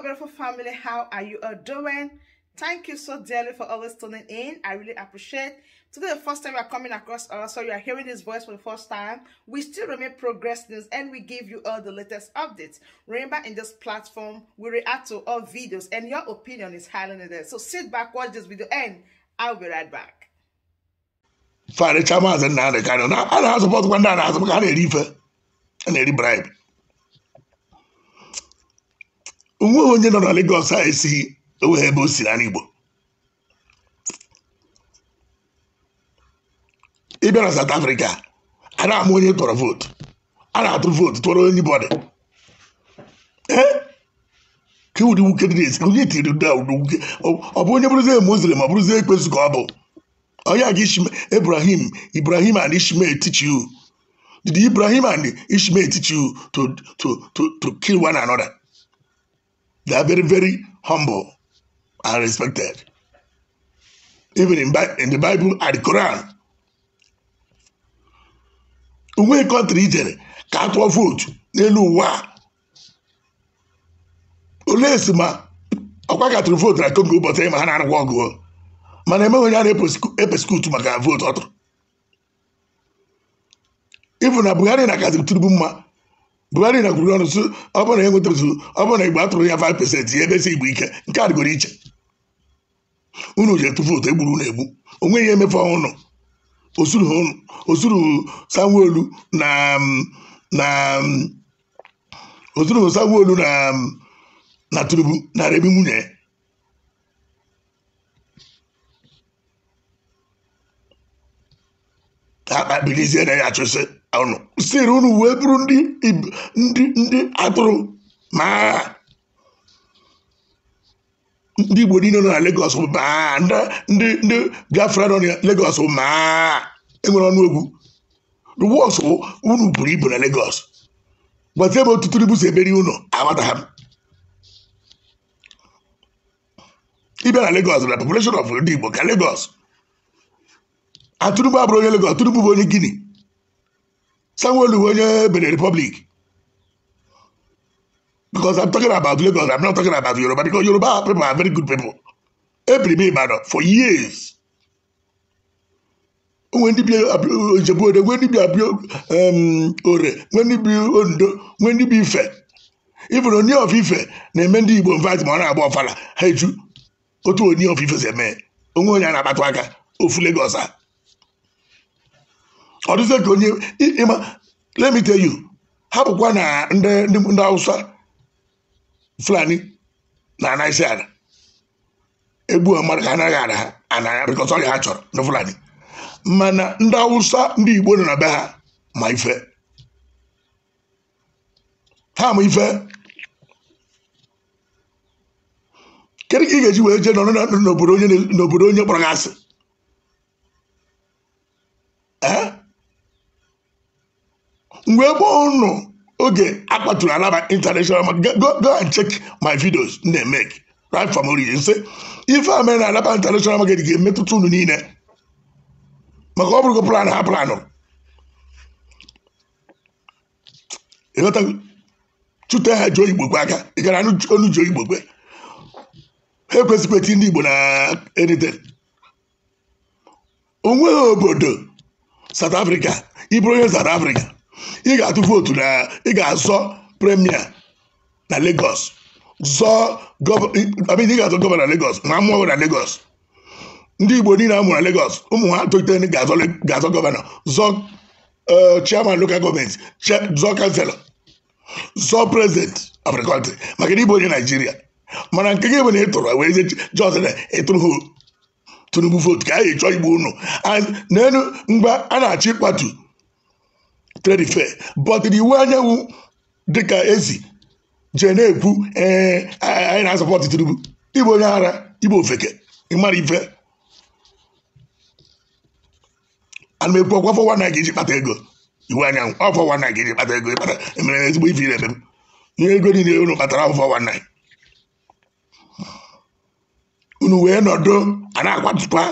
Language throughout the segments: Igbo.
beautiful family how are you all doing thank you so dearly for always tuning in i really appreciate today the first time you are coming across us so you are hearing this voice for the first time we still remain progress news and we give you all the latest updates remember in this platform we react to all videos and your opinion is highly needed so sit back watch this video and i'll be right back Father, Chamas and Nana Canon. I don't have support one down as a bribe. onwe onye nọ na Lagos a esighị enweghị ebe o si na Igbo ịbịa na South Africa a na-ama onye tọrọ vootu a na-atụ vootu tụọrọ onye bọdị ka ụdị nwoke dị na-esi onye tiri ụdị ụdị nwoke ọ bụ onye bụrụzie muslim ọ bụrụzie ekpesu ka ọ bụ onye aga Ibrahim Ibrahim and Ishmael teach you did Ibrahim and Ishmael teach you to to to to kill one another They are very, very humble and respected. Even in, in the Bible and the Quran. Uwe country ijere ka a tụọ vootu n'elu ụwa a. Olee esi ma ọkwa ka tụrụ vootu na Congo ụbọchị ịma ma ha na-arụkwa ọgụ mana emeghị onye a na skutu maka vootu ọ tụrụ. Ifu na Buhari na kazi tiribu mma Buhari na kwuru ọnụ sụ ọ bụrụ na enwetabezu ọ bụrụ na igbo atụrụ ya 5 pesentị ya si igbo ike nke a dịgoro iche unu ji etufu otu egburu unu egbu o nweghị emefe ọnụ osuru ụnụ osuru sanwoolu na um, na um, osuru sanwoolu na um, na turubu na ebi nwunye ya akpabilizie na ya achụsị siri unu wee bụrụ ndị ndị ndị atụrụ maa ndị igbo niile nọ na legos bụ maa ndị ndị Biafra nọ na Lagos bụ maa enwere ọnụ egwu the worst bụ unu buru ibu na legos gbata ebe otu tribu si eberi ụlọ agbata ha ịbịa na legos na population of ndị igbo ka legos atụrụbụ abụrụ onye legos atụrụbụ bụ onye Guinea Sanwo-Olu onye Benin Republic because I'm talking about Lagos I'm not talking about Yoruba because Yoruba people are very good people Every m Ibadan for years nwee ndị bi Ijebu-Ode nwee ndị bi Abia-Ore nwee ndị bi Ondo nwee ndị bi Ife even Oni of Ife na-eme ndị Igbo invite ma ọ na-agba ọfala ha eju otu Oni of Ife si eme onwe onye a na-akpatụ aka ofu Lagos a ọ dịzie onye ịma lemite me tell ha bụkwa na ndị ndị Hausa Fulani na-ana isi ala egbu mmadụ ka anaghị ada ha anaya bikọta ha chọrọ ndị Fulani mana ndị Hausa ndị Igbo nọ na be ha ma ife ha ma ife kedu ka ị ga-eji wee jee nọrọ n'obodo onye kpọrọ gị asị mgbe ebe unu oge akpaturu anaba international market go go and check my videos m na-emeke right from origin sị ife a mere na anaba international market ga-emetụta unu niile maka ọ bụrụgo plan ha planụ chute ha ji oyigbokwe aka ị gara onu ji oyigbokwe ha ekwesịkwa eti ndị igbo na edite onweghị obodo south africa ịbụrụ onye south africa ị ga-atụ vootu na ị ga-azọ premier na Lagos zọọ ị ga-azọ gọvanọ na legos ma mụọ na Lagos ndị Igbo niile amụrụ na legos ụmụ ha tolitere ga-azọ gọvanọ zọọ eh, chairman local gọọmenti zọọ kanselọ zọọ prezidenti of the country maka na Igbo onye Naijiria mana nke gị bụ na ị tụrụ wee jọs na ịtụrụ Tinubu vootu ka a ga-echọ Igbo unu n'elu mgbe a na-achọ ịkpatu tredife bọtịrị iwu anyanwụ dịka ezi jee na-ekwu ee anyị na-asọpọtụ Tinubu ịbụ onye ara ịbụ ofeke ịmara ife ana m ekwu ọkwa fọwa na ga iji kpata ego iwu anyanwụ ọ fọwa na ga iji kpata ego ịkpata emere na ezigbo ife ire eme m ihe ego niile unu kpatara afọ fọwa na unu wee nọdụ a na-akwatụkwa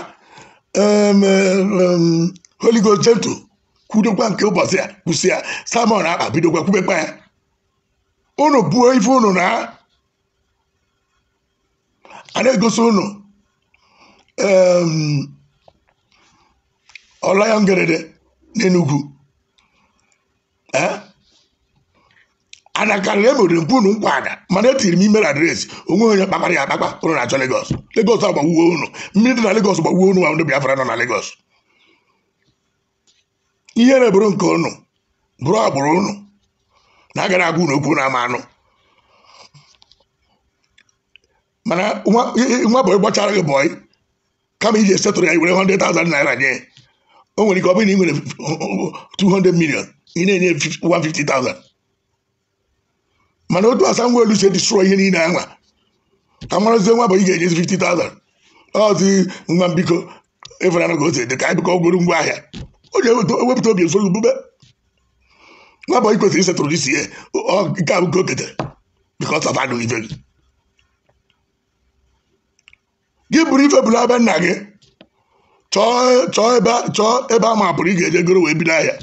Holy Ghost gentle kwudokwa nke ụbọchị a kwụsị ya samọn akpa bidokwa kwubekwa ya unu buo ife unu na a na-egosi unu ọlaya ngerede n'enugwu anakarịrị emere mpu unu nkwa ada mana etiri m imere adreesị onwe onye kpakpara ya akpakpa ụnụ na-achọ Legọs Legọs agbawuo unu mmiri dị na Legọs gbawuo unu nwa ndị Biafra nọ na Legọs ihe na-eburu nke ụnụ bụrụ agbụrụ ụnụ na agara agwa unu okwu na ama anụ mana nwa bọyị gbachara gị bọyị kama iji esetụrụ ya i were 100,000 naira nye o nwere ike ọ bụrụ na ị nwere 200 million ị na-enye 150,000 mana otu asa ngwa elu si edisro ihe niile anwa ka marazie nwa bọyị ga-enyezi 50,000 mbikọ nwa mbiko ịfụnanụ ka o si dị ka biko ọ ngwa ahịa ọ ga-ewepụta obi ezo gbube n'abụ i kwesịrị isetụrụ isi ya nke a nke ka o ketere because gị gị bụrụ ife bụrụ abịa nna gị chọọ ebe a ma pụrụ ị ga-eje goro wee bido ahịa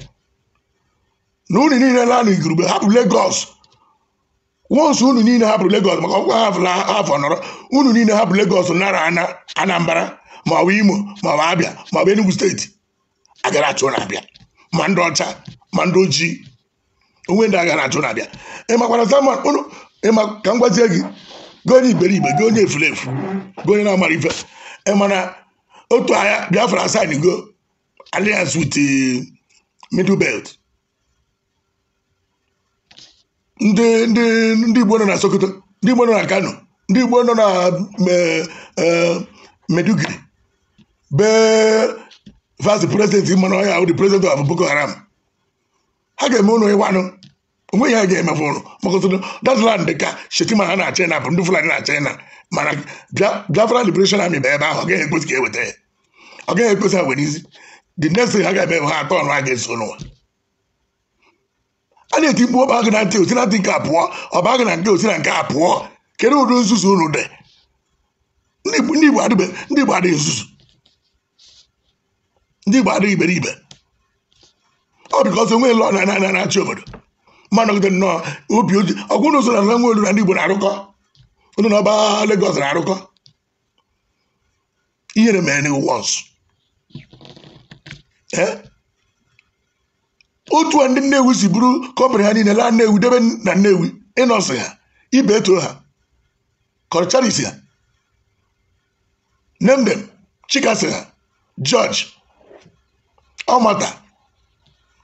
na unu niile lanụ igurube hapụ legos wonsu unu niile hapụrụ legos maka ọkwa afọ nọrọ unu niile hapụ legos nara Anambra ma ọ bụ Imo ma ọ bụ Abịa ma ọ bụ Enugu steeti agara achụ na-abịa ma ndị ọcha ma ndị ojii onwe ndị agara achụ na-abịa ịmakwara Simon ụnụ ịma ka m gwazie gị gị onye iberibe gị onye efulefu gị onye na-amara ife ịmana otu agha Biafra asan go alliance with middle belt ndị ndị ndị Igbo nọ na Sokoto ndị Igbo nọ na Kano ndị Igbo nọ na eh, eh, Meduguri bee vice president mmanụ ọhịa bụ the president of Boko Haram ha ga-eme ụlọ ịwanụ onwe a ga-emefu ụlụ maka ụtụtụ datland ka shetima ha na china bụ ndị fulani na china mana biafra liberation army bụ ebe ahụ ọ gaghị ekpesi ka eweta ya ọ gaghị ha izi the next thing ha ga-eme ha atọ ọnụ ha ga-eso a na-eti mkpu na nke a Igbo adịghị nzuzu ndị Igbo adịghị iberibe ọ bụ because enweghị lọ na-achị obodo ma nọgide nnọọ obi oji ọgwụ n'ụzọ na nwe olu na ndị Igbo na-arụkọ onye na ọba Lagos na-arụkọ ihere mere n'iwu once otu a ndị Nnewi si bụrụ kọmpanị ha niile laa Nnewi debe na Nnewi ịnọsị ha ibe eto ha kọlcharis ha nemdem chikasi ha George ọmata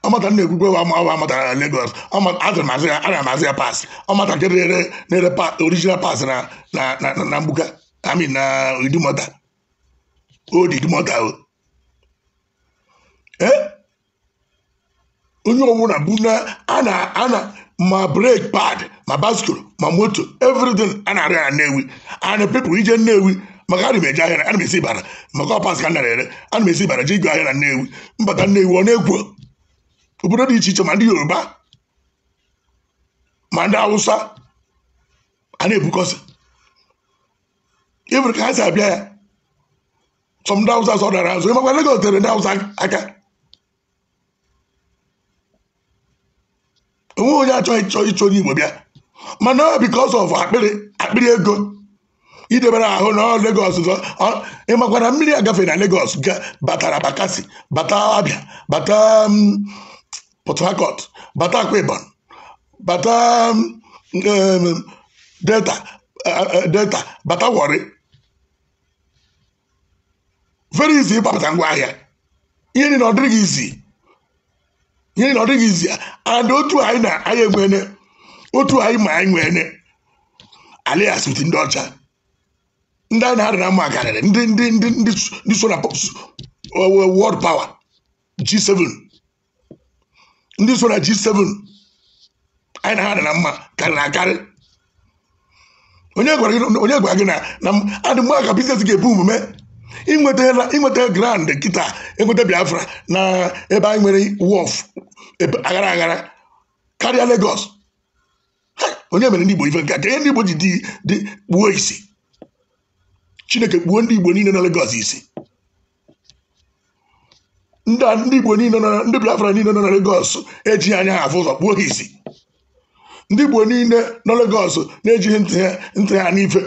ọmata na-ekwukwe wa awa amatara na Lagos ana amazi ya paasị ọmata nke na pa original paasị na na na mbuka ami na idumota old idumota o E, onye ọbụla bụ na ana ana ma brake pad ma baskul ma moto everything a na-arịa na Nnewi and people ije Nnewi maka a na m eji ahịa na m esi ibara maka ọpas ka m nara ere ana m esi ibara ji igwe ahịa na nnewi mbata nnewi ọ na-ekwo obodo dị iche iche ma ndị yoruba ma ndị awụsa a na-ebukọsị ịbụrụ ka ha si abịa ya sọ ndị hausa sọ dara azụ ịmakwa Lagos tere ndị awụsa aka onweghị onye achọghị ịchọ ịchọ onye igbo bịa mana because of akpịrị akpịrị ego idebere ahụ na Lagos ịmakwa na mmiri agafe na Lagos batara bakasi bata Abia bata um, Port Harcourt bata Akwa bata um, um, Delta uh, uh, uh, Delta bata Warri very easy ịgbapụta ngwa ahịa ihe niile ọ dịghị izi ihe niile ọ dịghị izi and otu anyị na anyị enwene otu anyị ma anyị nwene alias ndị ọcha ndị a na-adị na mma karịrị ndị ndị ndị ndị so na world power G7 ndị so na G7 anyị na ha dị na mma karịrị akarị onye gwara gị na na adị mgbe ka biznes ga-ebu omume inweta grand kịta enweta Biafra na ebe anyị nwere wọf aghara aghara karịa Lagos onye mere ndị Igbo ife nke a ka ihe ndị Igbo ji dị gbuo isi chineke kpuo ndị igbo niile na Lagos isi ndị igbo niile ndị biafra niile nọ na Lagos ejighị anya ha afụ ụzọ kpuo ha isi ndị igbo niile na Lagos na-ejighị ntị ha n'ife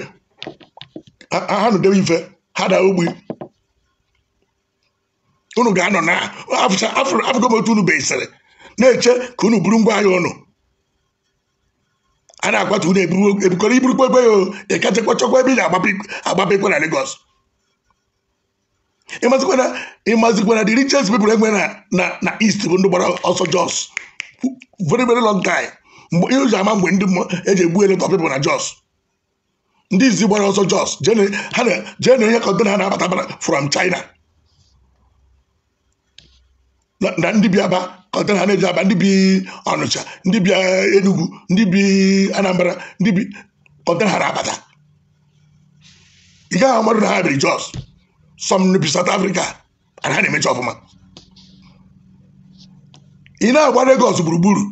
ha nụdebe ife ha daa ogbi unu ga-anọ na afụgo m otu unu besịrị na-eche ka unu buru ngwa ahịa unu a na-akwatu unu ebukọrọ iburukwa egbe ya ịkachakwa chọkwa ebe ị na-agbapekwa na Lagos ịmazikwa na the richest people enwe na na east bụ ndị gbara ọsọ Jos very very long time ihe ụzọ ama mgbe ndị eji egbu eleta people na Jos ndị izi gbara ọsọ Jos jee na onye kọntena ha na-abata from China na ndị Biafra kọtara ha na-eji aba ndị bi ọnụcha ndị bi eh, enugwu ndị bi anambra ndị bi kọtara ha na-abata ị gaghị amadụ na ha biri jos sọm bi South Africa and ha na-emecha ọfụma ị na-agba Lagos gburugburu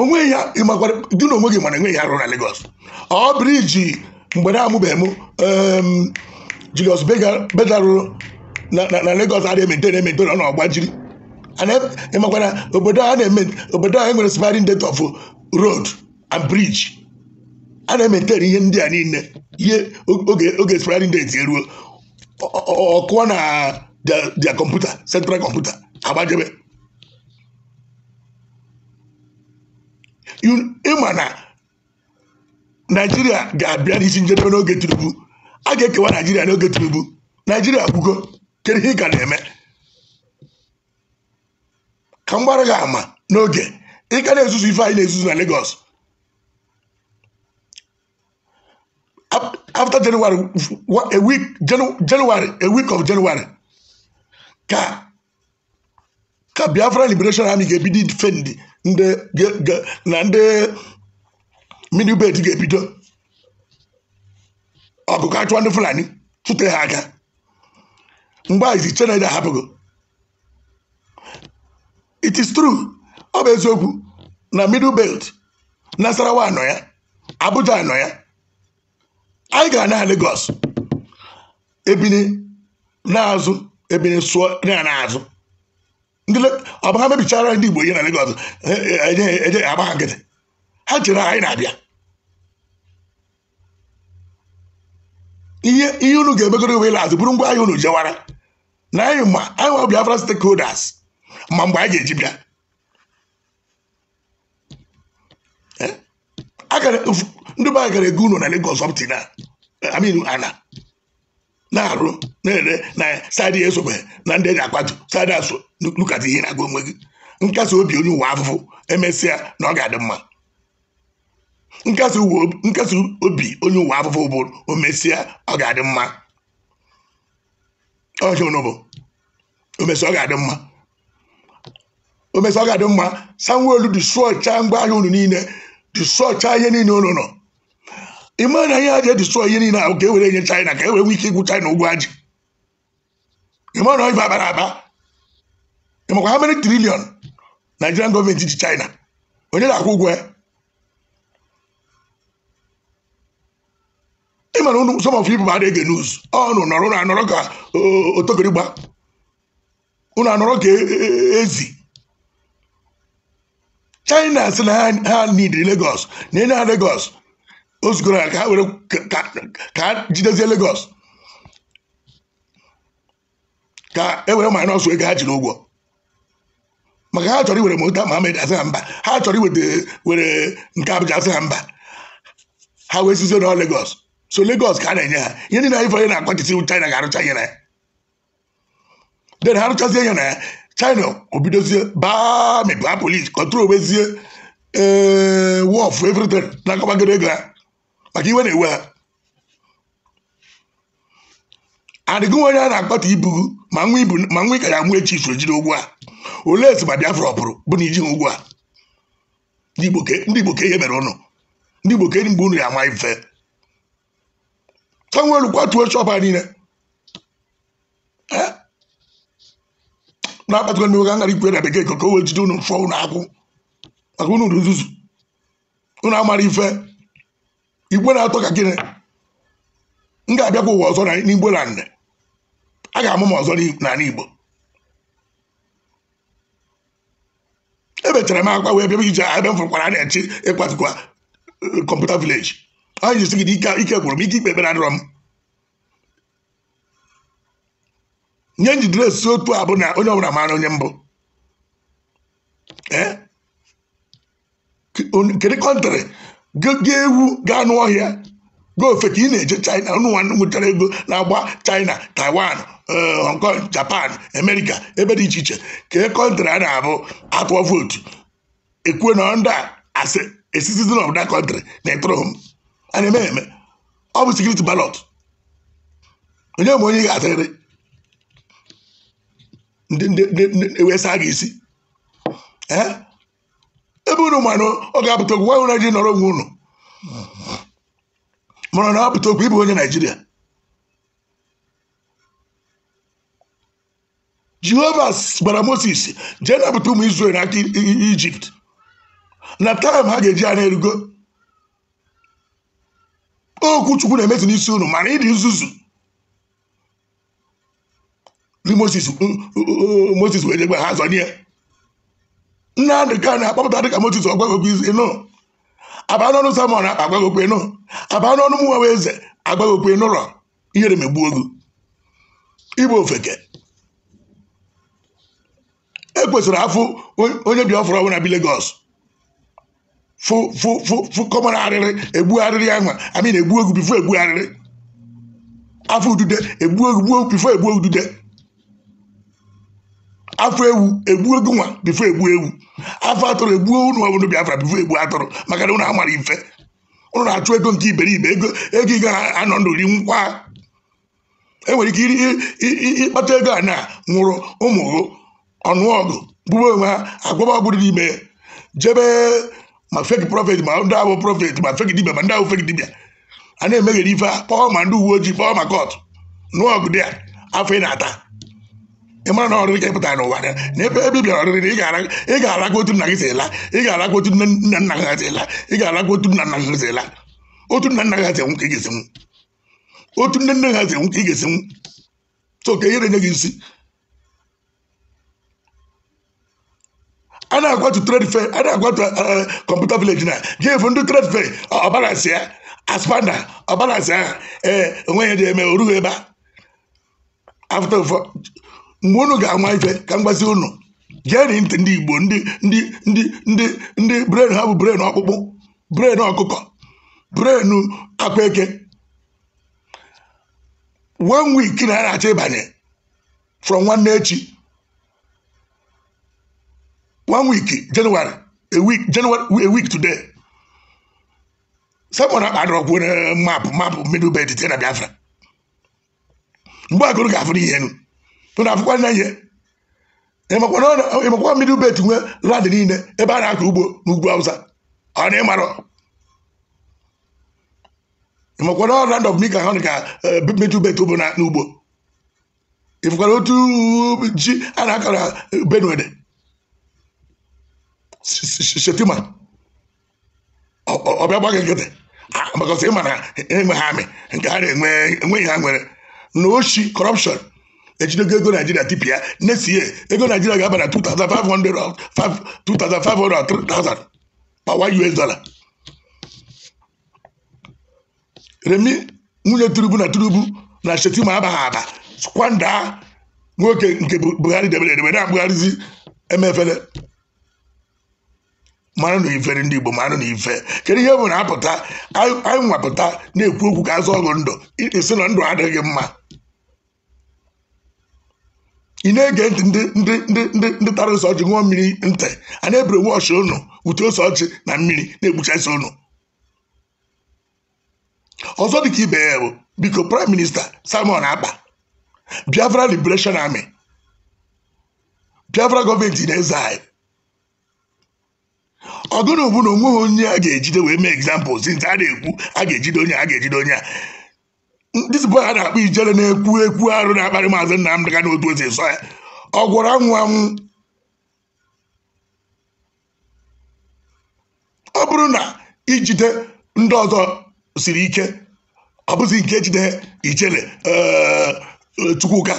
onwe ya dị na onwe gị mana enweghị arụ na Lagos ọ briji mgbe na-amụbeghị m ehm, Julius bedarụ na Lagos adịghị emetone emetone ọ na-agbajiri ọgba ịmakwara obodo a na-eme obodo a nwere sparing date of uh, road and bridge a na-emetere ihe ndị a niile ihe oge sparing date eruo ọkụọ na dia kọmputa central kọmputa agbajebe ịma na naijiria ga-abịa n'isi njedebe n'oge tinubu a ga-ekewa naijiria n'oge tinubu naijiria gwugo kedu ihe ị ka na-eme ka m gbara ama n'oge ị ka na-ezuzu ife anyị na-ezuzu na Lagos Afta January a week a week of January ka ka Biafra Liberation Army ga-ebido defend na ndị minibet ga-ebido ọgụgụ achụwa ndị Fulani tụte ha aka mgbe izi Chinedu ahapụgo it is true ọ bụ eziokwu na middle belt nasarawa anọ ya abuja anọ ya anyị gara na Lagos ebini na-azụ ebini sụọ na-azụ ọ bụ ha mebichara ndị Igbo ihe na Lagos eje e, e, e, agba ha nkịtị ha chere anyị na-abịa ihe unu ga-emegoro iwe azụ bụrụ ngwa ahịa unu jewara na anyị ma anyị nwa Biafra stakeholders ma mgbe a ga-eji bịa eh? ndị be a gara ego ụlọ na Lagos ọptin eh, amin ana na-arụ na-ere na sadị esobe na ndị eji akwatu sadị asụ lukata ihe na-agụ onwe gị nkasi obi onye ụwa afụfụ emesịa na ọ ga-adị mma nkasi obi onye ụwa afụfụ bụ o mesịa ọ ga-adị mma ọcha onye bụ o ọ ga-adị mma o omesi ọ ga-adị mma sanwo-olu dịsụọcha ngwa ahịa unu niile dịsụọcha ihe niile unu nọ ịma na ihe aja ji edịsụọ ihe niile ahụ ka e were nye China ka e wee nwee ike igwu China ụgwọ ajị ịma na ọ abara aba ịmakwa ha mere triliọn Nigerian gọọmenti ji China onye na-akwụ ụgwọ ya ị mara unu some of people adịghị news ọnụ nọrọ ụnụ anọrọ ka otokirigba ụnụ anọrọ ka ezi china sị na ha need Lagos na enye ha Lagos o zugoro ka ha were ka ha jidezie Lagos ka e were minus ego ha jiri ụgwọ maka ha chọrọ iwere mota Mohammed asị ha mba ha chọrọ iweta were nke Abuja asị ha mba ha wee sizie na Lagos so Lagos ka a na-enye ha ihe ndị na-ayịfọ ihe na-akwachisi China ga-arụcha ihe na ya den ha rụchazie ihe na ya china obidozie baa mị baa polis kọtụrụ ee wọf evritin na-akọbagoro ego ha maka iwe na-ewe ha adịgo onye a na akpati ibu ma nwa ibu ma nwa ịkara echi so jiri ụgwọ a olee esi ma biafra ọpụrụ bụ na iji ụgwọ a ndị igbo ka ihe mere ụnụ ndị igbo ka mgbe unu ya ama ife ka nwere kwatuo chọpa niile na-akpatara m oge ikwe na bekee ka o wee jide unu fụọ unu akwụ maka unu nzuzu unu amara ife igwe na-atọ ka gịnị m ga-abịakwa ụwa ọzọ n'igbo na nne a ga-amụ m ọzọ n'ala igbo ebechara m akwa wee bịa ije ebe m fụrụkwara na-echi ịkwatukwa kọmputa eh, vileji anyị jisi gị ike gwụrụ m ike ikpe ekpere adịrọ m nye njidere si otu a bụ na onye ọbụla maara onye mbụ eh? kedu kọntrị ga ewu gaa n'ọhịa gaa ka ị na-eje china ụnụ nwanne nwetara ego na-agba china taiwan eh, hong kong japan amerịka ebe dị iche iche kee kọntrị a na-abụ atụọ vootu ekwue na ndị asị esitizin of that country na ịtụrụ m a na-eme eme ọ bụ sekuriti balọt onye ma onye ị ga-atịrịrị na-ewesa a gị isi ebe unu ma na ọ ga-apụta okwu nwaanyị na ji nọrọ onwe unu mara na apụta okwu ịbụ onye naijiria jehova gbara moses jee napụta ụmụ israel n'aka ijipt na taịm ha ga-eji ya na-erugo okwu chukwu na-emezu n'isi unu mara ịdị nzuzu bí moses uh, uh, uh, moses ẹ̀ẹ́dẹ́gbẹ̀ ha sọ ní ẹ nnamdi kanu akpọpụta dịka moses ọgbagogbo ise nọ abanọnụ samọn agbagogbo nọ abanọnụ mụnwa eze agbagogbo nọrọ ihere megbu ogu igbe ofeke e kwesịrị afụ onye biafra ọbụla bi legos fụ fụ fụ fụ kọmara arịrị egbu arịrị ahụ amị na-egbu ogu bifo egbu arịrị afọ udude egbu ogu gbuo bifo egbu ogu dude afọ ewu egbuo gị nwa bifo egbuo ewu afọ atụrụ egbuo unu bi biafra bifo egbuo atụrụ maka na unu amara ife unu na-achụ ego nke iberibe ego ego ị ga-anọ ndụ ri nkwa enwere ike ịkpata ego a na nwụrụ ụmụ ọnụọgụ bụba onwe ha agwaba ọgwụ dị n'ime jebe ma feki prọfet ma ndị ahụ prọfet ma feki dibia ma ndị ahụ feki dibia a na-emeghere ife a kpọọ ma ndị uwe ojii kpọọ ma kọt nụọ ọgụ dị afọ ị na-ata ị mara na ọrịrị ka ị pụtara n'ụwa na ebe ebe bịara ọrịrị ị ga-alakwa otu nna gị si ela ị ga-alakwa otu nne nna gị si ela ị ga-alakwa otu nna nna gị si ela otu nna nna gị si enwu ka otu nne nne gị si ka ka gị isi a na-agwatu trade a na-agwatu kọmputa eh, na ndị ya aspanda ahụ ee ebe mgbe unu ga-ama ife ka m gbazi unu jeri ntị ndị igbo ndị ndị ndị ndị ndị bren ha bụ bren ọkpụkpụ bren ọkụkọ bren akpa eke one week na na ịbanye from nwanne echi one week January a week January a week today sekpọ na agụrụ ga-afụ n'ihe na afụkwa nne ihe ịmakwa mmiri ube tinwe landị niile ebe a na-akọ ugbo n'ugwu awụsa ọ na ịmarọ ịmakwa na ọra ndọ mika ha ka mmiri e, ube na n'ugbo ịfụkwara otu ji a na-akọrọ benue shetima ọbịa e, nke ha enweghị ha nwere na ejidogo ego naijiria tipịa next ego naijiria ga-aba na 2500 per US dollar remi nwunye turubu na turubu na shetima abaghị aba kwanda nwoke nke buhari debere edebe na-abụgharịzi emefele mara na ife ndị igbo mara na ife kedu ihe bụ na apụta anyị nwapụta na-ekwu okwu ka azụ ọgụ ndụ isi na ndụ adịghị mma ị na-ege ntị ndị ndị ndị ndị ndị tara ose ọjị ṅụọ mmiri ntị a na-ebere wọchị ụnụ ute ose ọjị na mmiri na-egbuchasị ụnụ ọzọ dịka ibe ya bụ biko prime minista Simon Akpa Biafra Liberation Army Biafra gọọmenti na-eze anyị ọgụ na ogbu na onweghị onye a ga-ejide wee mee egzampụl zinta a na-ekwu a ga-ejide onye a ga-ejide onye a ndị bụ ha na-akpọ ijele na-ekwu ekwu arụ na-akparị maazị Nnamdị Kanu otu esi eso ya ọ gwọrọ anwụ anwụ ọ bụrụ na ijide ndị ọzọ siri ike ọ bụzi nke jide ijele eh, Chukwuka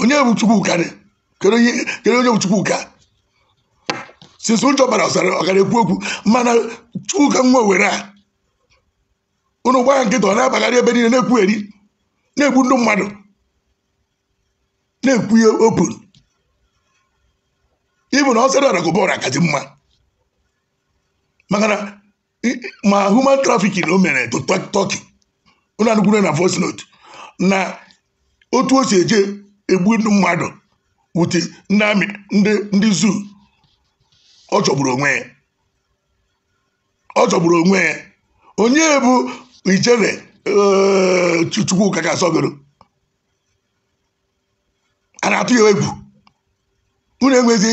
onye bụ Chukwuka kedu onye bụ Chukwuka sisi ụjọ bara ọsara ọ gara ekwu okwu mana Chukwuka nwa were a unu gbaa nkịta ọ na-abagharị ebe niile na-ekwugheri na-egbu ndị mmadụ na-ekwu ihe open ịbụ na ọ sara ọra aka ọra mma maka na ma human trafficking o mere to Turkey unu anukwuru na voice note na otu o si eje egbu ndị mmadụ wute ndị amị ndị zoo ọ chọgburu onwe ya ọ chọgburu onwe ya onye bụ ichere Chukwuka ka asọgoro a na-atụ ya egwu unu enwezi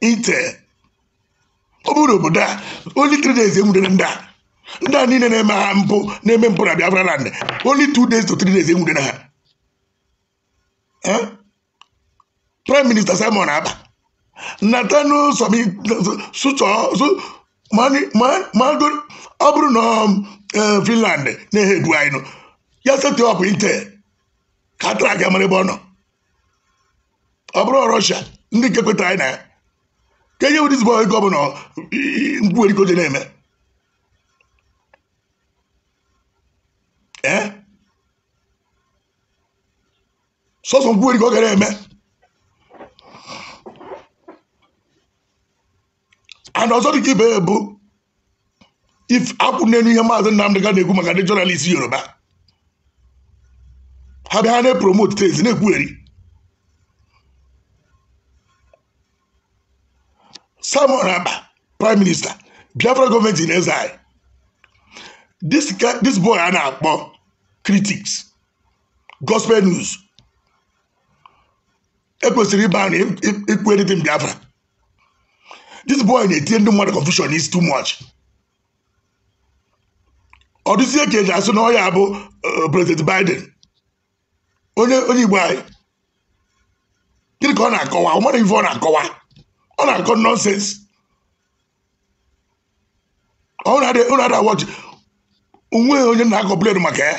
ite ọ bụrụ obodo a only three days enwudere ndị a ndị a niile na-eme ha mpụ na-eme mpụ na Biafra land only two days to three days enwudere ha prime minister Simon Aba natanu somi sụchọ ma ọ bụrụ na Eh, finland na-ehe egwu anyị ya setọpụ intel ka a tara aga mara ebe ọ nọ ọ bụrụ ndị nke kwetara anyị na ya ka enye wụdị zibọ ego ọbụla mgbuwerikoje na-eme ee eh? sọsọ dị ka ọ gara eme and ọzọ dị ka ibe ebu if akwụ n'elu ihe maazị Nnamdị ga na-ekwu maka ndị jọnalist Yoruba ha bịa ha na-epromote tezi na-ekwugheri Simon Akpa prime minister Biafra gọọmenti in exile Dis boy a na-akpọ critics gospel news ekwesịrị ịba na ikwu editin Biafra this boy na-etinye ndị mmadụ confusion is too much ọ dịzie ka eji asụ na ọ ya bụ eh, prezident Biden onye onye Igbo anyị gịnị ka ọ na-akọwa ọ mara ife ọ na-akọwa ọ na-akọ nọnsensị ụnụ onye na-akọmplen maka ya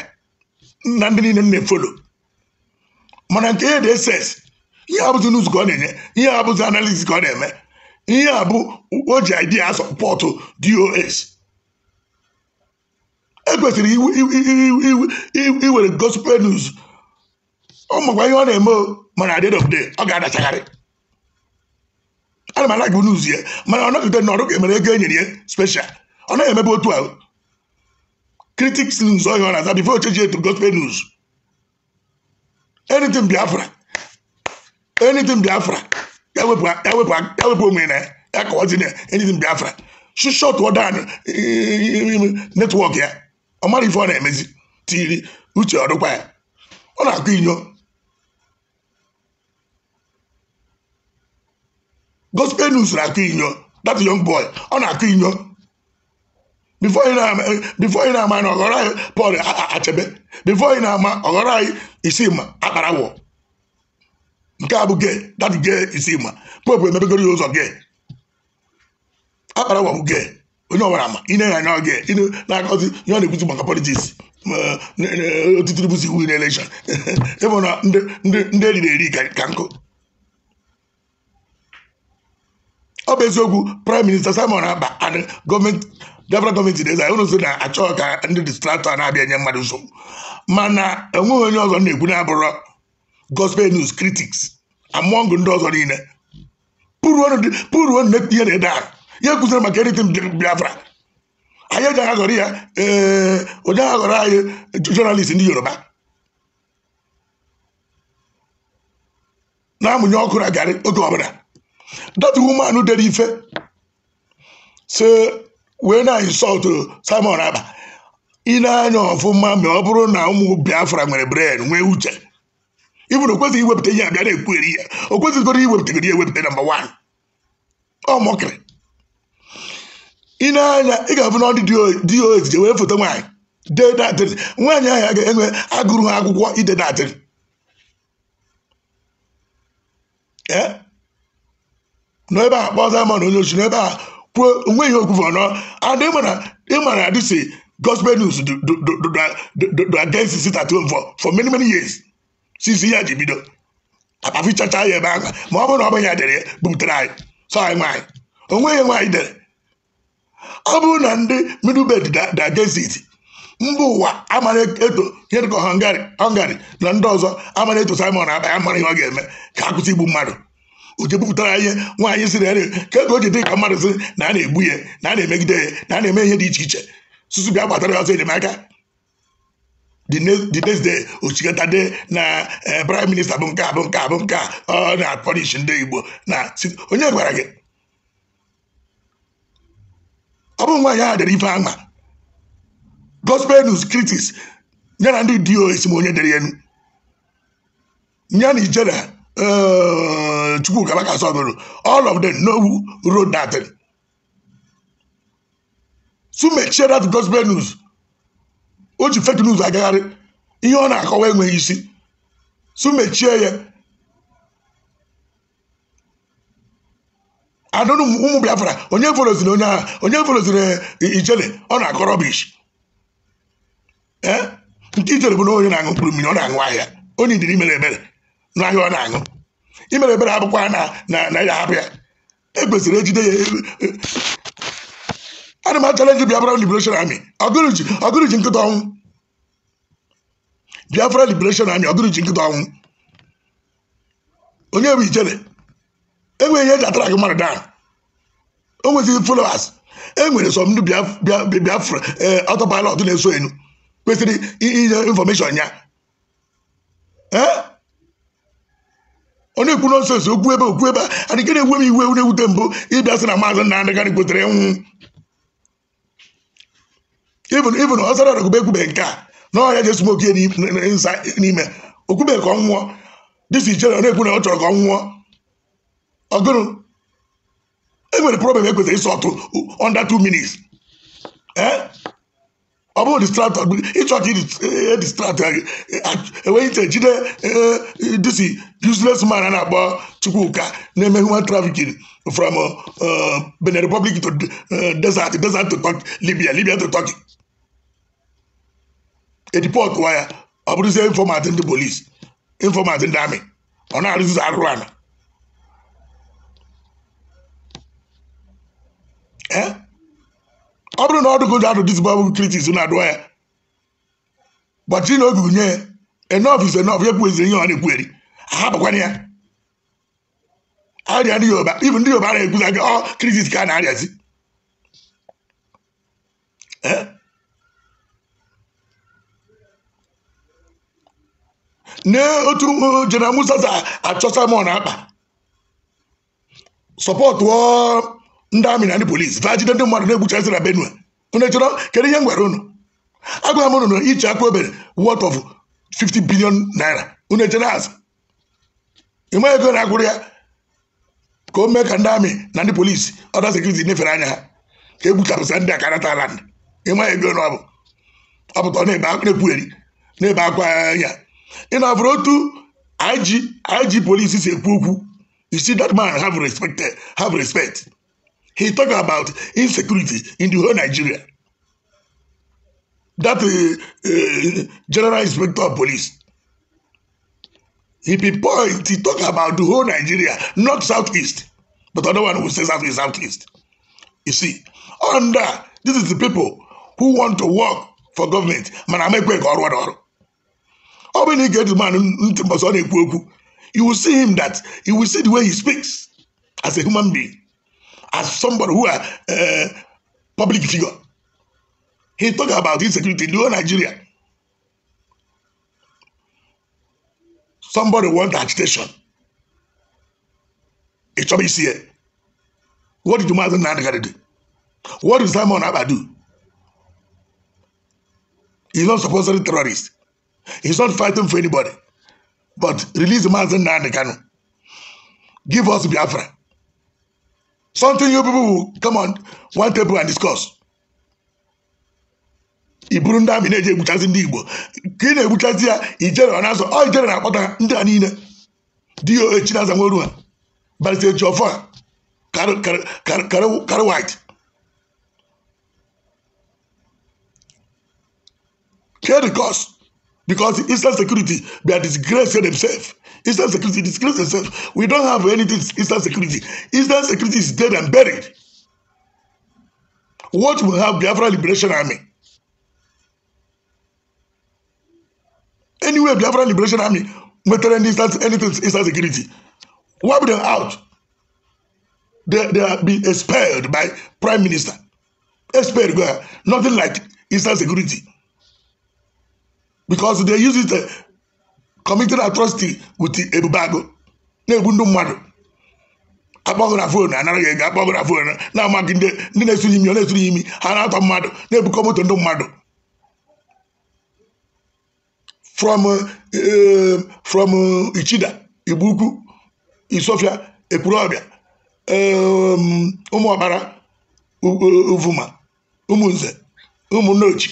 na ndị niile na-efolo mana nke ya dị eses ihe abụzi nuz ka ọ na-enye ihe abụzi analiz ka ọ na-eme ihe a bụ o ji idea sọpọtụ dos ekwesịrị iwere gospel news ụmụkwa ihe ọ na-eme mana adị dobde ọ ga-adachagharị ana m anaghị n'uzu ya mana ọ nọgide na ọrụ ga-emere ego enyere ya special ọ naghị emebe otu uh, ahụ critics news ọhịa oh, ọ na-aza bifo ocheji etu gospel news anything biafra anything biafra ya wepụ onwe na ya kọwazi na anything biafra shishọtụọ dan eh, eh, eh, netwọk ya ọ mara ife ọ na-emezi tiri uche ọdụkwa ya ọ na-akụ inyo gospel news na-akụ inyo that young boy ọ na-akụ inyo before ị na-ama na ọghọrọ anyị Paul Achebe before ị na-ama ọghọrọ anyị akpara Akparawọ nke a bụ gay that gay Isima popu ya ụzọ gay Akparawọ bụ gay onye ọbara ma ị na-enye anya oge na-akọzi ihe ọ na-ekwuzi maka politiks otitiri bụzi iwu na elekshọn ịbụ na ndị eriri eri ka nkụ ọ bụ eziokwu praịm minista simon aba gọọmenti debra gọọmenti na-eza ụrụ so na-achọ ka ndị distraktọ na-abịa nye mmadụ nsogbu mana enweghị onye ọzọ na-ekwu na-abụrụ gospel news critics among ndị ọzọ niile pụrụ ihe na-ede ahụ ya kụziri maka eritin biafra anyị eji aghagọrọ ya ee onye aghagọrọ anyị jọnalist ndị yoruba na-amụnye ọkụ na garị oge ọbụla dọtụ woman dere ife si wee na insọltụ Simon Aba ị na-anya ọfụma ma ọ bụrụ na ụmụ Biafra nwere bren nwee uche ibụrụ okwesịghị iwepụta ihe abịa na-ekwugheri ya o kwesịghịgoro iwepụtagoro ya ewepụta namba wan ọ mọkịrị ị na-anya ị ga-abụ n'ọdụ dị ya ojije wee foto nwaanyị dee na-adịrị nwaanyị ahụ a ga-enwe agụrụ ha akwụkwọ ide adịrị e? n'ebe a kpọọ Diamond onye ochi n'ebe a kwuo onweghị okwufe ọnọ adị ịmara adịsi gospel news against at home for many many years since ihe ji bido akpafichacha ya ebe ahụ ma ọ bụrụ na ọ bụ ya dere ya bubutere anyị so anyị nwaanyị onweghị nwaanyị dere ọ bụrụ na ndị da dagezit mba ụwa amara eto e hedgo hungary na ndị ọzọ amara eto simon aba ya mara ihe ọ ga-eme ka akwụsị igbu mmadụ uche bupụtara ihe nwaanyị siri ere ka ego o ji dị ka mmadụ si na a na-egbu ya na a na-emegide ya na a na-eme ihe dị iche iche susu bịa gbatara ya ọzọ enyemaka the next day ochikọtade na eh, prime minista bụ nke a bụ nke a bụ nke a ọ na-apọlish ndị igbo na onye gwara gị ọ bụrụ nwaanyị ahụ dere ife ama gospel news critics ya na ndị dos ma onye dere enu ya na ijere eh, Chukwu kabaka sọgoro all of them know who wrote that so make sure that gospel news o ji fake news agagharị ihe ọ na-akọwa enweghị isi so mechie ya adụrụ ụmụ biafra onye foloziri onye agha onye foloziri e, ijele ọ na akọrọ rọbish ee nke ijele bụ na onye na-aṅụ mkpụrụ mmiri ọ na-aṅụ ahịa onye idiri imere ebere n'ahịa ọ na-aṅụ imere ebere abụkwa na ya hapụ ya e kwesịrị ejide ya e, ana m achalenji biafra liberation army ọgụrụji nkịta ọnwụ biafra liberation army ọgụrụji nkịta ọnwụ onye bụ ijele enwere ihe eji atara gị mmadụ down o nwezighị followers enwere nwere sọ ndị biafra eh, autopilot na-eso enu kwesịrị inye infọmeshọn ya onye eh? ikwu nonsens okwu ebe okwu ebe adị ke na-ewe m iwe na-ewute mbụ ịbịa sị na maazị nna ndị gadị gotere nwụ ibn ọsara ọdọgụba ekwube nke a na ọhịa jesu nwoke n'ime okwube ka ọ nwụọ dịsi ichere na-ekwu na ọ chọrọ ka ọ nwụọ ọgụrụ enwere problem e kwesịrị ịsọ under two minutes e? ọ bụrụ distraktọ ịchọ ka e distraktọ gị enweghị e, iche jide disi useless man a na-akpọ Chukwuka na-eme human trafficking from uh, Benin Republic to uh, desert desert to Turkey Libya Libya to Turkey edipọt wa ya ọ bụrụzie informat ndị polisi informat ndị amị ọ na-arụzizi arụrụ ala Eh? ọ bụrụ na ọ dụgo adụ dis Bible critics na adụ ya gbachiri na obi nye ya enough is enough ya kwuezi ihe ọ na-ekweri eri ahapụkwana ya arịa ndị Yoruba ibu ndị Yoruba na-ekwuza gị ọ critics ka a na-arịazi eh? n'otu General Musa achọsa m ọ na-akpa sọpọtụ ndị amị na ndị polisi taa jide ndị mmadụ na-egbuchasị na benue unu chọrọ kedu ihe m gwara unu agwa m unu iche aka obere worth of 50 billion naira unu echere azụ ịma ego na-agwụrụ ya ka o mee ka ndị amị na ndị polisi ọda sekuriti nyefere anya ha ka e gbuchapụsa ndị aka nata ala ego na ọbụ bụ ọ na-ekwugheri na-ebe akwa anya ị na-afụrụ otu IG polisi si ekwu okwu you see that man have respect He's talking about insecurity in the whole Nigeria. That uh, uh, general inspector of police. He pinpoint, he talk about the whole Nigeria, not Southeast. But another one who says Southeast, Southeast. You see, under this is the people who want to work for government. Man, I make work or whatever. How many get the man you will see him that you will see the way he speaks as a human being as somebody who are a eh, public figure. He talked about insecurity in Nigeria. Somebody want agitation. It's obvious here. Eh? What did Umaru Nandagari do? What did Simon Abba do? He's not supposedly terrorist. He's not fighting for anybody. But release Mazen Nandekano. Give us Biafra. Something you people will come on one table and discuss. i buru ndị amị na-eji egbuchasị ndị Igbo ka ị na-egbuchasị ya ijere ọ na-azọ ọ ijere na-akpọta ndị a niile di ya echi na-aza nweru ha barịta echi ọfọ a karị white kedu cos because instant security bia disgrace themselves Eastern security disgrace itself. We don't have anything Eastern security. Eastern security is dead and buried. What will have Biafra Liberation Army? Anyway, Biafra Liberation Army wetara anything Eastern security. Wipe them out. They, they are being expelled by Prime Minister. Expelled, nothing like Eastern security. Because they use it uh, committed atrocity with ebubago na-egbu ndị mmadụ akpọgụ na fon anara gị ego na fon na-amaghị ndị na-esuri imi ọ na-esuri imi ha na-atọ mmadụ na-ebukọ moto ndị mmadụ from eh, from Ichida Igboukwu Isofia ehm, ụmụ ụmụọkpara Uvuma ụmụnze ụmụnnochi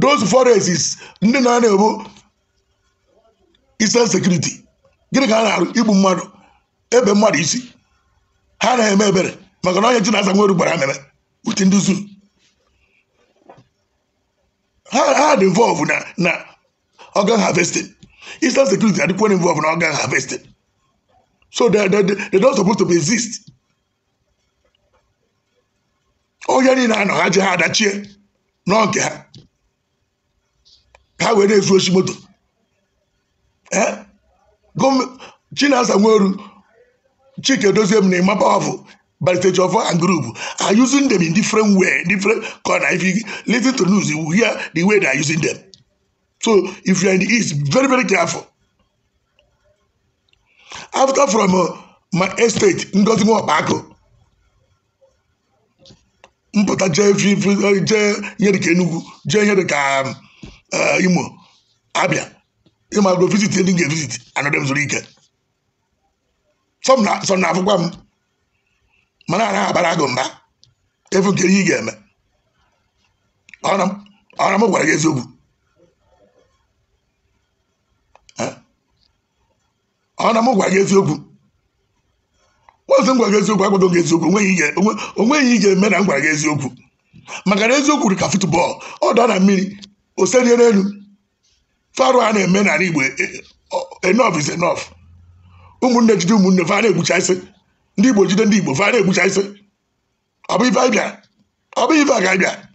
those forests ndị na-ana isen sekuriti gịnị ka ha na-arụ igbu mmadụ ebe mmadụ isi ha na-eme ebere maka na onye chinaza nweru gbara ameme uti ndị zu ha dị involve na na organ harvesting isen sekuriti adịkwa involve na organ havesting so they, don supposed to be exist onye niile anọ ha ji ha adachie nọ nke ha ka ha wee na-ezu oshi moto Chinasa Nweru, Chike Doziem na Emma Powerful, balitage Jofo and group are using them in different way, different corner. If you listen to news, you will hear the way they are using them. So if you are in the East, very, very careful. After from uh, my estate, Ngozi Nwabako, mpụta jee jee nyere ka Enugu jee nyere ka um, uh, Imo Abia ịma go visit ndị ga-evisit anọdụ m zuru ike sọ na-afụkwa m mana a naghị abara gụ mba efu nke ihe ị ga-eme ọra m gwara gị eziokwu eh? ọra m gwara gị eziokwu ozi m gwara gị eziokwu akwado gị eziokwu onweghị ị ga-eme na m gwara gị eziokwu maka na eziokwu dị ka futbọọlụ ọ dọọ na mmiri o serie n'elu ọrụ a na-eme n'ala Igbo e, enough is enough ụmụnne jide ụmụnne va na-egbucha isi ndị Igbo jide ndị Igbo va na-egbucha isi ọ bụ ife anyị bịa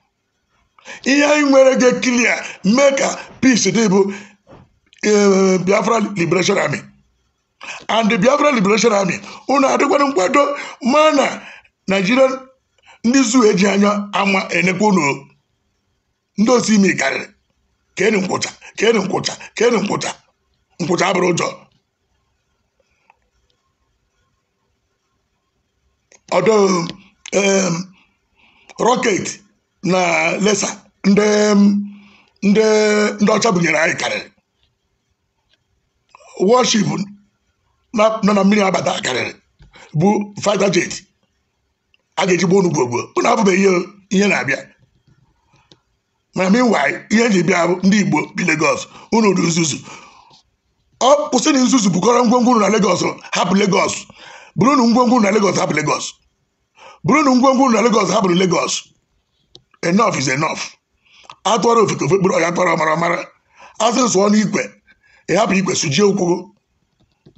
ihe anyị nwere ga klia mee ka peace dị bụ e, Biafra Liberation Army and the Biafra Liberation Army unu adịkwara nkwado ma na Nigerian ndị zu eji anya ama enekwa unu ndị osi imi karịrị ka enyi nkwụcha kenu nkwụcha kenu nkwụcha nkwụcha abụrụ ụjọ ọdụ rọket na lesa ndị ndị ndị ọcha bunyere anyị karịrị wọship nọ na mmiri abata karịrị bụ fighter jet a ga-eji gbuo onugbo gbuo abụbeghị ihe na-abịa mana meanwhile ihe ji bịa ndị Igbo bi legos unu nzuzu ọ kwụsị na nzuzu bụkọrọ ngwongwo na legos hapụ legos bụrụ na ngwongwo na legos hapụ Lagos bụrụ na ngwongwo na legos. hapụrụ Lagos enough is enough atụọrọ ofeke ofe kpụrụ ọya tọrọ mara mara asị sụọ n'ikwe ịhapụ ikwe sụjie okwu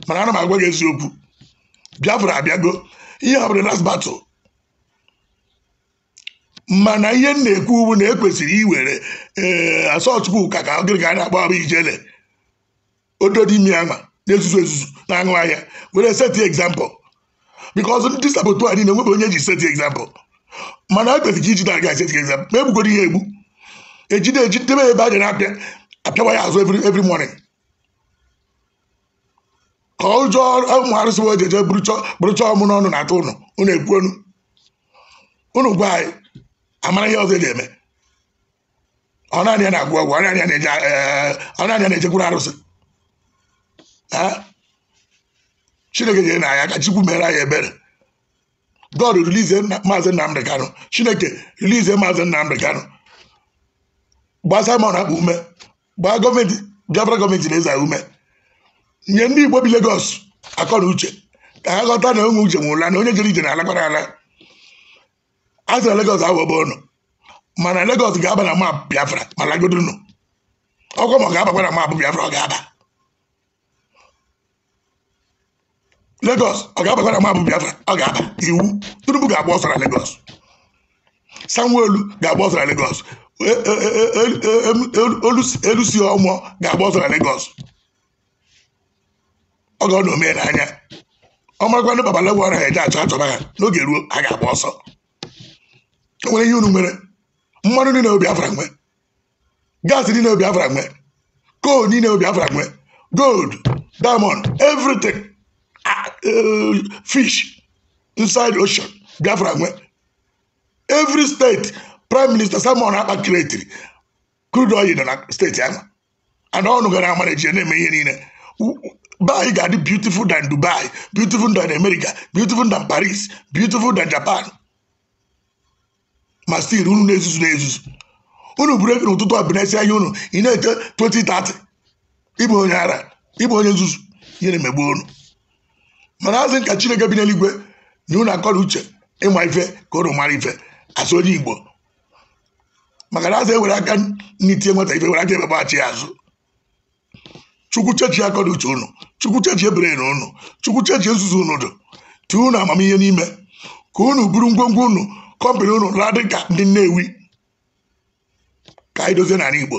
mana ana m agwa gị eziokwu Biafra abịago ihe hapụrụ last battle mana ihe m na-ekwu bụ na ekwesịrị iwere ee eh, asọt ka gịrị ka a na-akpọ abụ ijele ododimi ama na-ezuzu ezuzu na-aṅụ ahịa were seti egzampụl bikọz ndị sabụtu a niile nwebe onye ji set egzampụl mana ekwesịrị iji ijide aga set egzampụl ma egbugoro ihe egbu ejide ejidebe ebe a na-apịa apịawa ya azụ every morning ka ụjọ ụmụ arụsị wee jeje bụrụcha ọmụ n'ọnụ na-atụ ụnụ ụnụ ekwuonu ụnụ gwa anyị amara ihe ọzọ ị ga-eme ọ naanị ya na-agwụ ọgwụ ọ naanị ya eh, na-ejekwuru arụsị eh, chineke nyere na anya ka chukwu mere anyị ebere god rilize maazị nnamdị kanụ chineke rilize maazị nnamdị kanụ gbaa simon akpa ume gbaa gọọmenti biafra gọọmenti na-eza ume nye ndị igbo bi legos akọ na uche ka ha ghọta na onwe uche nwụrụla na onye jere ije na-alakwara ala a sịra Lagos aghọgba unu mana Lagos ga-aba na map Biafra ma lagodo unu ọkwa ma ọ ga-abakwa na map Biafra ọ ga-aba Lagos ọ ga-abakwa na map Biafra ọ ga-aba iwu Tinubu ga-agba ọsọ na Lagos sanwo ga-agba ọsọ na Lagos Olusi-Ọmụọ e, e, e, ga-agba ọsọ na Lagos ọ ga ọ na ome n'anya ọ makwa ndị babalagwa ọra ha eje achọ achọba ha n'oge ruo ha ga-agba ọsọ nwere ihe unu nwere mmanụ niile obi afra nwe Gas niile obi afra nwe coal niile obi afra nwe gold diamond everything e, fish inside ocean biafra nwe every state prime minister Simon Akpa kiretiri crude oil na steeti ahụ and ọnụ gara amarachi na-eme ihe niile bai ga-adị beautiful than Dubai beautiful than America beautiful than Paris beautiful than Japan ma stil unu na-ezuzu na-ezuzu unu buru ego n'ụtụtụ abinesi anya unu ị na-ete 2030 ịbụ onye ara ịbụ onye nzuzu ihe na-emegbu unu mana azị nka chineke bi n'eluigwe na unu akọrọ uche ịma ife ka ụnụ mara ife asụ onye igbo maka na azị ewere aka n'itie nweta ife were aka ebebaghachi ya azụ chukwu chechi akọrọ uche unu chukwu chechi ebere na unu chukwu chechi nzuzu unu dụ tee unu amamihe n'ime ka unu buru ngwongwo unu kọmpanị unu na-adị ka ndị Nnewi ka anyị dozie n'ala Igbo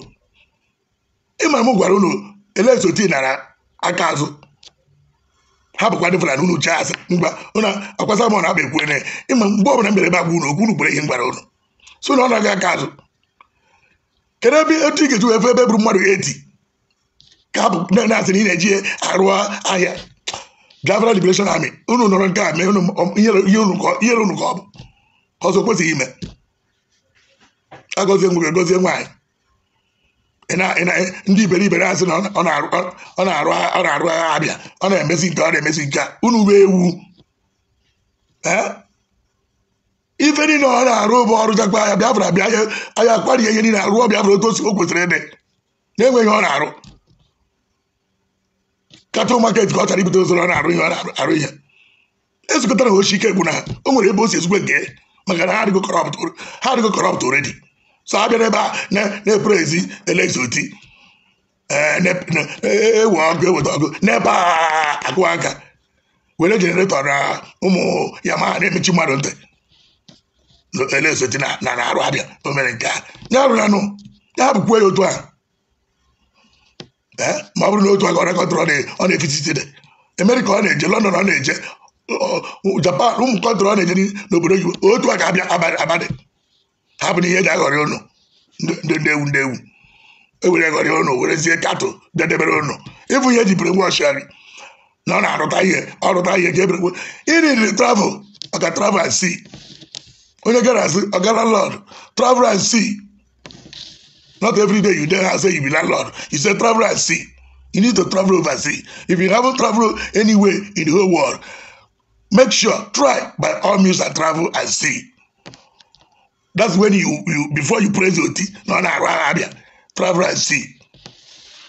ịma m gwara unu elezoti nara aka azụ hapụkwa ndị Fulani unu jee asị mgba ụna akwasa m na abụ ekwu ene ịma mgbe ọbụla mere ebe agwa unu okwu unu gbere ihe gwara unu so na ọ na-aga aka azụ kedu ebe etu ị ga-eji efe ebe bụrụ mmadụ eti ka hapụ na-asị na ị na-eji arụ ahịa Biafra Liberation Army unu nọrọ nke a mee ihe unu ka ọ bụ ọzọ kwesịghị ime agọzie nwoke gozie nwaanyị ndị iberibe asị na ọ na-arụ agha abịa ọ na-emezi nke ọ na-emezi nke a unu wee ewu ife niile ọ na-arụ bụ ọrụ jakwa ya bịafra bịa anya akparie ihe niile arụọ bịafra otu o kwesịrị ịdị na-enweghị ọ na-arụ katụl maket ka ọ chara ibute ụzọ ọ na-arụ ihe ọ na-arụ ihe e ike gwụ na o nwere ebe o si nke maka na ha adịgo kọrọpt oredi so abịa e, e, e, n'ebe a na-epere ezi elezoti ewe ọgụ eweta ọgụ n'ebe a agụwa nka were jeneretọ na ụmụ Yama ma na-emechi mmadụ ntị elezoti na na-arụ abịa o mere nke a ya rụrụ anụ ya bụkwa ya otu a ma ọ bụrụ na otu aka ọ na-ekọtara ọ na-efititide emerika ọ na-eje lọndọn ọ na-eje Oh, japan ụmụ kọntrol na-enyere n'obodo oyibo otu a ga-abịa abalị hapụ na ihe ga-aghọrị ụnụ ndị ewu ndị ewu ewere ghọrị ụnụ werezie katụ dedebere ụnụ ịbụ ihe jibere nwa ọchịarị na ọ na-arụta ihe ọrụta ihe ka ebere iriri travel ọka travel and sea onye gara asị ọgara lọd travel and see. not every day you dey house say you be landlord you say travel and see you need to travel see. if you haven't traveled anywhere in the whole world make sure try by all means and travel and see that's when you you before you praise your tea na ọ na-arụ agha abịa travel and see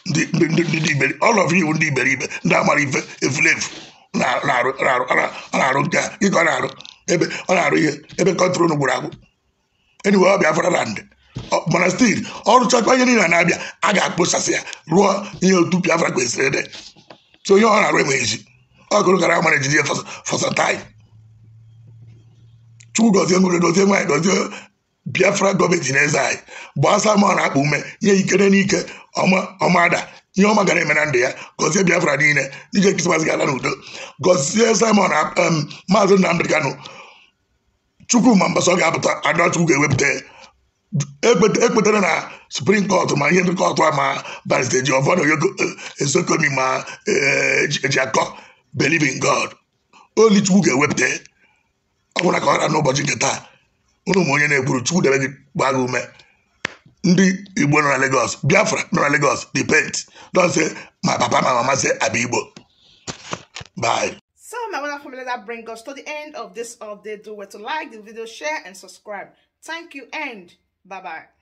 ndị iberi all of you ndị iberibe ndị amara ife efulefu na-arụ nke a dịka ọ na-arụ ebe ọ na-arụ ihe ebe kọntrol gburu agbụ anyway ọ bịafra land mana stil ọrụchakwa ihe niile na-abịa a ga-akpụsasị ya rụọ ihe otu Biafra kwesịrị dị so onye ọ na-arụ enweghị ezi ọ gụrụ gara amara ejiji ya fọsatai chukwu gozie nwere dozie nwaanyị dozie biafra gọọmenti na-eze anyị bụ asa ma ọ na-akpa ume ihe ikere n'ike ọmada ihe ọma gara eme na ndụ ya gọzie biafra niile ije krismas ga-ala n'udo gọzie simon maazị nnamdị kanụ chukwuma mbasọ ga-apụta ada ga-ewepụta ekpetara na suprim kọtụ ma ihe ndị kọtụ a ma barista ji ọvọdụ yogo ezokomi eh, ma ejiakọ eh, believe in god only chukwu ga-ewepụta eh? ọ bụrụ ka ọ gara n'ụbọchị nke taa ụnụ ma onye na-ekwuru chukwu debe gị gbaa gị ume ndị igbo nọ na lagos biafra nọ na lagos depend Don't say my papa my mama say i be igbo bye So my wonderful family, that bring us to the end of this update. Do where to like the video, share, and subscribe. Thank you and bye-bye.